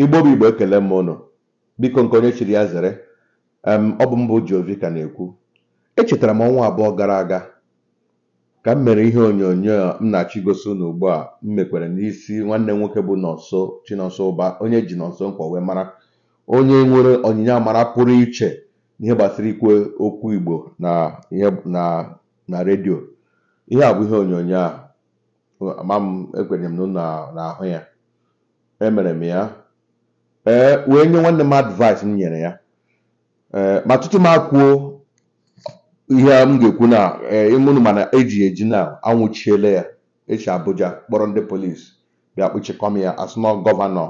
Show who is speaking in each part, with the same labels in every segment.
Speaker 1: igbo bụ igbo ekele m ụnụ biko nke onye chiri ya zere ọ bụ mbụ Jovi ka na-ekwu echetara m ọnwa abụọ gara aga ka m mere ihe onyonyo m na achọ igosi unu ugbu a m mekwere n'isi nwanne m nwoke bụ Nonso Chinonso Ụba onye ji Nonso Nkwọ wee mara onye nwere onyinye amara pụrụ iche n'ihe gbasara ikwe okwu Igbo na na redio ihe a bụ ihe onyonyo a ama m ekwenyere m na ahụ ya emere m ya ee eh, wee nye nwanne m advice m nyere ya eh, ma tutu m akwuo ihe m ga-ekwu na ịmụnụ eh, mana eji eji na anwụchiele ya echi Abuja kpọrọ ndị polisi bịa m ya asụnọ gọvanọ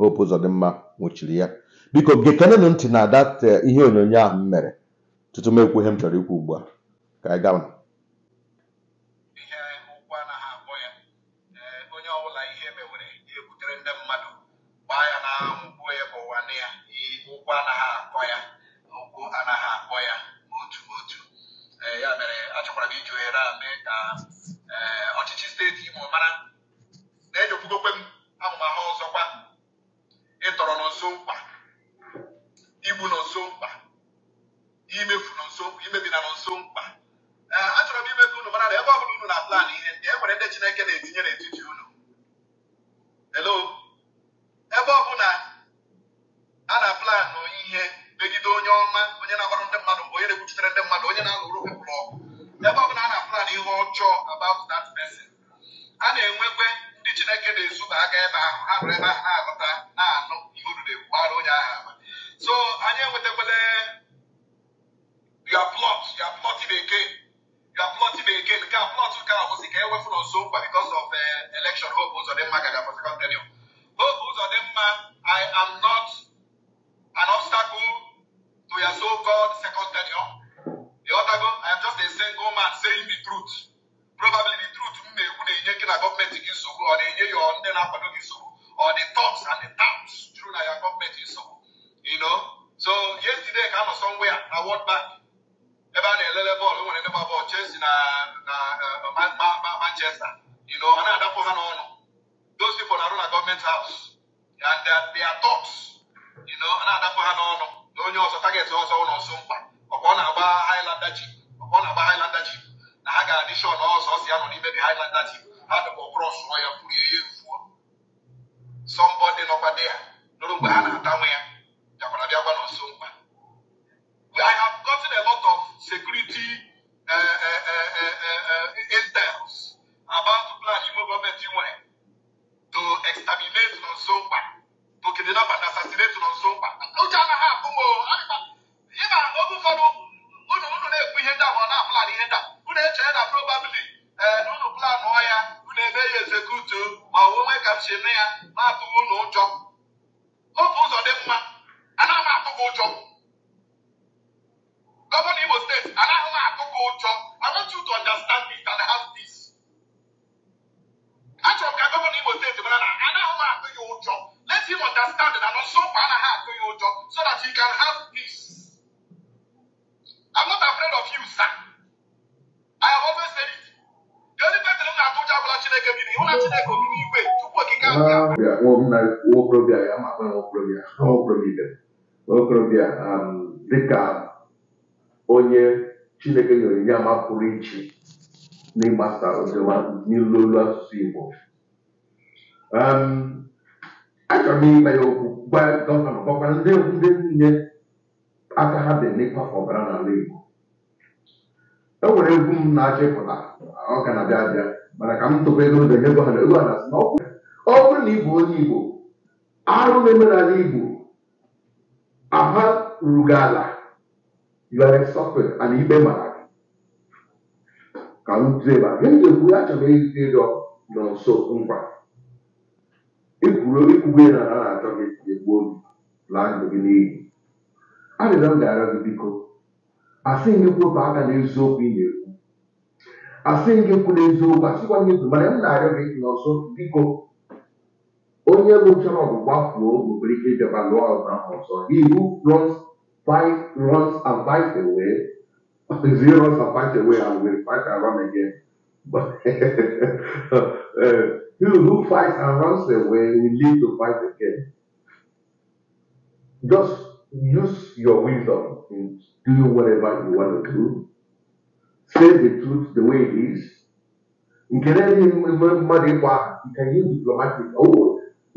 Speaker 1: Hope mma nwụchiri ya biko na ntị na dat ihe onyonyo ahụ m mere tutu m m chọrọ ikwu ugbu a ka anyị gaa
Speaker 2: na nkwụ ya bụ nwanne ya ụkwụ anaghị akọ ya ụkwụ anaghị akpọ ya otu otu ya mere achọkwara m iji ohere a mee ka ọchịchị steeti Imo mara na-ejekwugokwe m amụmahụ ọzọkwa ịtọrọ n'ụzọ mkpa igbu n'ụzọ mkpa imefu n'ụzọ imebina n'ụzọ mkpa achọrọ m ime ka unu mara na ebe ọ bụla unu na-aplan ihe ndị e nwere ndị Chineke na-etinye n'etiti unu hello mmadụ onye na-alụrụ pepụl ọgụ ebe ọ bụla a na-apụlan ihe ọjọọ about that person a na-enwekwe ndị Chineke na-ezuba aka ebe ahụ ha bụrụ ebe ahụ nsogbu ọ na-enye ya ndị na-akwado gị nsogbu ọ dị tops and the taps juru na ya gọọmenti nsogbu you know so yesterday ka anọ somewhere na World Bank ebe a na-elele bọọlụ nwere ndị gba bọọlụ Chelsea na na uh, Manchester you know ọ na-adapụ ha n'ọnụ those people na-arụ na gọọmenti house and they are tops you know ọ na-adapụ ha n'ọnụ na onye ọzọ target ọzọ ụlọ nso mkpa ọkwa ọ na-agba Highlander ji ọkwa ọ na-agba Highlander ji na ha ga-adishọn ọzọ ọsọ ya nọ n'ime the Highlander ji Надо вопрос я прием. so that he can have peace. I'm not afraid of you, sir. I have always said it. The only person who told you about Chineke bi ni, wọ́n láti Chineke bi ni ìwé túbọ̀ kíkà
Speaker 1: bí a. Wọ́n na wọ́n kúrò bí a, yà máa fẹ́ wọ́n kúrò bí a, wọ́n kúrò bí a, wọ́n kúrò bí a, dịka onye Chineke nyere ya ma pụrụ iche n'ịgbasa oziọma n'ilu olu asụsụ Igbo. Um, achọrọ m ime ya okwu gwa gọvanọ gwakwa ndị ndị niile aka ha dị n'ịkwafe ọbara n'ala Igbo e nwere egwu m na-achọ ịpụta ọ ka na-abịa abịa mana ka m tụba ego ndo nye gọvanọ ego na ọ bụrụ na ị bụ onye Igbo arụ na-eme n'ala Igbo aha ruru gị ala you are suffering ikpe mara ka m tụọ ebe a ga-ekwu achọrọ ịdị ịdọ nọ nso ngwa ekwuru ekwube na ha na-achọ gị egbuo gị laa ndụ gị n'iyi arịrịọ m ga-arịọ gị biko asị gị kwụpụ aka n'eziokwu ị na-ekwu asị gị kwụ n'eziokwu asịkwa gị ezu mana m na-arịọ gị n'ọzọ biko onye bụ lụchara ọgwụgwa fuo nwere ike ịbịaba lụọ ọgụ ahụ ọzọ ihu runs fight runs and fight away zero runs and fight away and will fight He who fights and runs away We live to fight again. Just use your wisdom in doing whatever you want to do. Say the truth the way it is. In you money, can nke na-enye mmadụ ịkpọ aha nke ihe diplomatik owo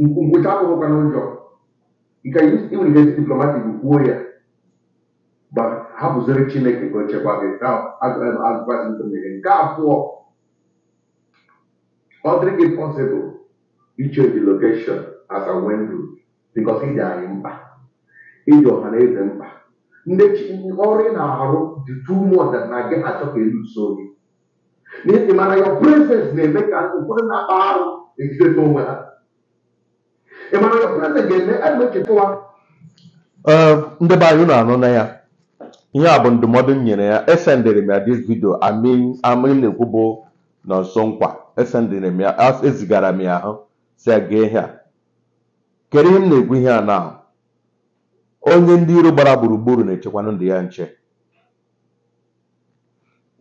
Speaker 1: ngwụcha akwụkwọ na ụjọ nke nwere ihe diplomatik kwuo make ma hapụziri chineke ka o chekwa gị advaịs nke a abụọ ọdịghị pọsịbụl ichenji lokeshọn as a window because ịdị anyị mkpa ịdị ọha na eze mkpa ndị ọrụ ị na-arụ dị too much na gị achọ ka elu so gị n'ihi mara na-eme ka na-akpa onwe ha ga-eme ebe echetawa ndị be anyị na-anụ na ya ihe a bụ ndụmọdụ m nyere ya esendịrị m ya dis vidio amin na na bụ nọ nso nkwa esendịrị m ya ezigara m ya ahụ si ya ihe a kedu ihe m na-ekwu ihe a na onye ndị iro gbara gburugburu na-echekwanụ ndị ya nche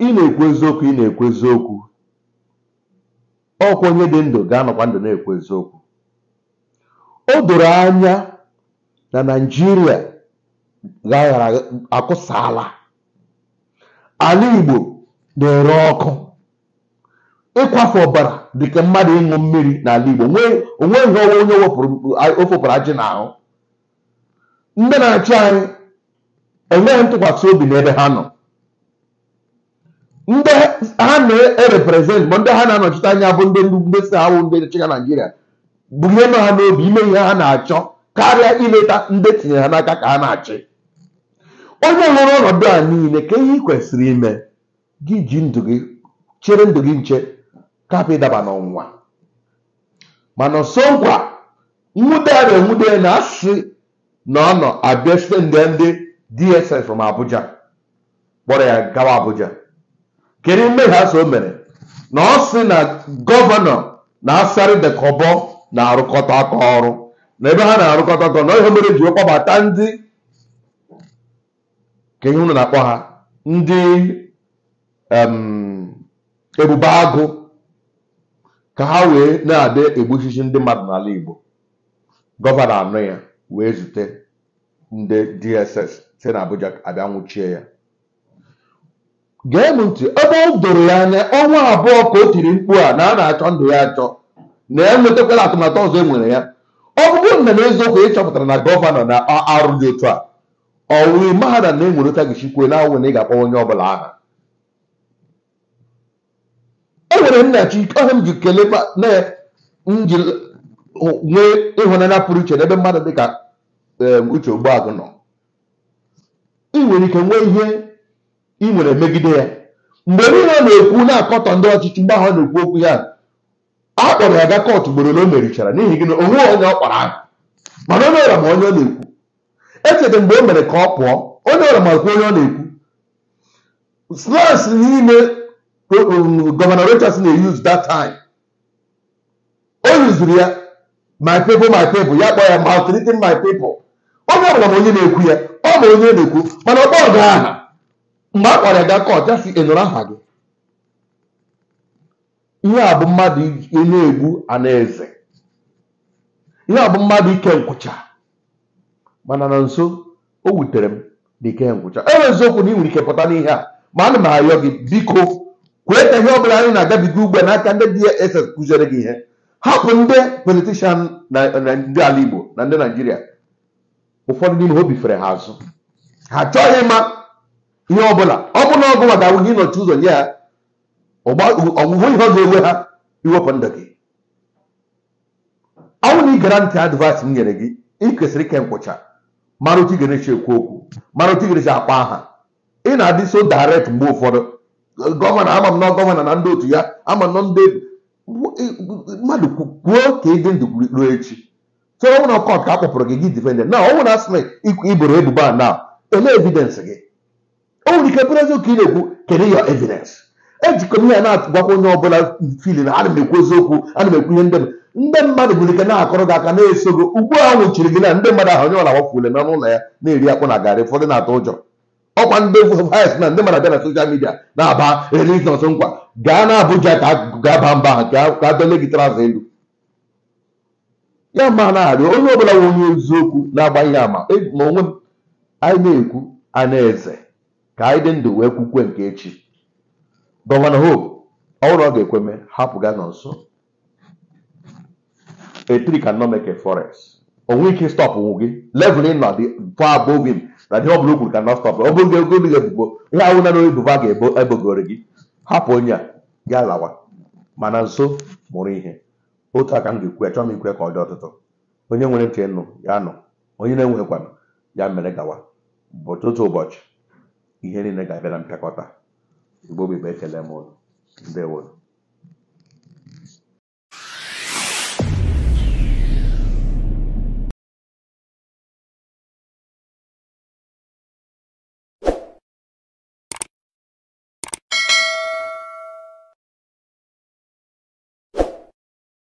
Speaker 1: ị na-ekwu eziokwu ị na-ekwu eziokwu ọkwa onye dị ndụ ga-anọkwa ndụ na-ekwu eziokwu o doro anya na naijiria akụsala ala igbo na-ere ọkụ ịkwafe ọbara dịka mmadụ ịṅụ mmiri n'ala Igbo onwe nhị ọnwa onye ofopụrụ ajị n'ahụ ndị na-achị anyị enweghị ntụkwasị obi n'ebe ha nọ ndị ha na-ereprezent ma ndị ha na-anọchite anya bụ ndị ndị si awụ ndị chịga Naijiria bulie nọ ha n'obi ime ihe ha na-achọ karịa ileta ndị tinyere ha n'aka ka ha na-achị onye hụrụ ọnọdụ a niile ka ihe ị kwesịrị ime gị ji ndụ gị chere ndụ gị nche kapụ ịdaba n'ọnwa mana nso nkwa nwude ya enwude na asị na ọ nọ abịa site nde ndị DSS from Abuja kpọrọ ya gawa Abuja kedu mmehie so o mere na ọ sị na gọvanọ na-asarị dekọbọ na-arụkọta aka ọrụ na ebe ha na-arụkọta aka na ihe mere ji kpọbata ndị kenye unu na-akpọ ha ndị ebube agụ ka ha wee na-adị egbuchichi ndị mmadụ n'ala Igbo gọvanọ anọ ya wee zute ndị DSS si na Abuja abịa nwụchie ya gee m ntị ebe o doro ya anya ọnwa abụọ ka o tiri mkpu a na a na-achọ ndụ ya achọ na ya e atụmatụ ọzọ e nwere ya ọ bụrụ na n'eziokwu ịchọpụtara chọpụtara na gọvanọ na arụ dị otu a ọwụwe mahadum na-enweretaghị chikwe na e awụ na ị ga-akpọ onye ọbụla aha chi ọha m ji kelee na nji nwee ịhụnanya pụrụ iche n'ebe mmadụ dị ka uche ogbuagụ nọ ị nwere ike nwee ihe ị nwere megide ya mgbe niile na-ekwu na-akọtọ ndị ọchịchị mgbe ahụ na-ekwu okwu ya a kpọrọ ya ga kọtụ ugboro ole o merichara n'ihi gị na o onye ọ kpara ahụ mana onye ọra ma onye ọ na-ekwu echeta mgbe o mere ka ọ pụọ onye ọra ma kwa onye ọ na-ekwu slas niile Um, governor Rochas na eyuzu that time o yuzuru ya my people my people ya kpọọ ya maltreating my people onye ọbụla ma onye na-ekwu ya ọ bụ onye na-ekwu mana ọkpọ ọga aha mgbe a kpọrọ ya ga kọt ya aha gị ihe a bụ mmadụ na-egbu anaeze ihe a bụ mmadụ ike nkwụcha mana na nso o wutere m dị ike nkwụcha e okwu na ị nwere ike pụta n'ihe a ma ana m ayọ gị biko kweta ihe ọbụla anyị na-agabiga ugbu a n'aka ndị DSS kụziere gị ihe hapụ ndị politishan ndị ala Igbo na ndị naijiria ụfọdụ n'ime ha obifere ha azụ ha achọghị ịma ihe ọbụla na ọgụ maka ahụ gị nọchi ụzọ nye ya ọgwụgwụ ihe ọ ga-ewe ha iwepụ ndụ gị ọnwụ na ị gara ntị advaịs m nyere gị ị kwesịrị ike nkwụcha mara otu ị ga-enechi ekwu okwu mara otu ị ga-enechi akpa aha ị na-adị so daret mgbe ụfọdụ gọvanọ ama m na gọvanọ na ndị otu ya ama nọ ndị mmadụ kwuo ka ịdị ndụ ruo echi so ọ bụrụ kọt ka a kpọpụrụ gị gị difendent na ọ bụrụ asị na iboro ebubo a na ele gị o nwere ike bụrụ eziokwu ị na-ekwu kedu yọ evidensị ejikọ m ihe na agwakwa onye ọbụla fili na ana m ekwu eziokwu ana m ekwu ihe ndị ndị mmadụ bụrụ ike na-akọrọ gị aka na-eso gị ugbu a nwụchiri gị na ndị mmadụ ahụ onye ọla wafuole na n'ụlọ ya na-eri akpụ na garị ụfọdụ na-atụ ụjọ ọkwa ndị egwu vayis na ndị mara bịa na soshal midia na-aba religions nkwa gaa na Abuja ka gaa mba ka dole gị trazụ elu ya ma na-arị onye ọbụla nwe onye eziokwu na-agbaghị ama e, ma onwe m anyị na-ekwu anaeze ka anyị dị ndụ wee kwukwe nke echi gọvanọ Hope ọhụrụ ọ ga-ekweme hapụ ga nọ nso etiri ka forest onwe ike stọpụ gị level ị nọ dị far above na ihe ọbụla okwuru ka na stọp ọ bụrụ ego dị ebubo ihe awụ na n'oge duva ga-ebogoro gị hapụ onye a gaa lawa mana nso mụrụ ihe otu aka m ga-ekwu ya chọọ m ikwe ka ọ dị ọtụtụ onye nwere ntị nụ ya nọ onye na-enweghịkwanụ ya mere gawa ụbọchị otu ụbọchị ihe niile ga-abịa na mpịakọta igbo bụ ibe ekele m ụlọ ndewo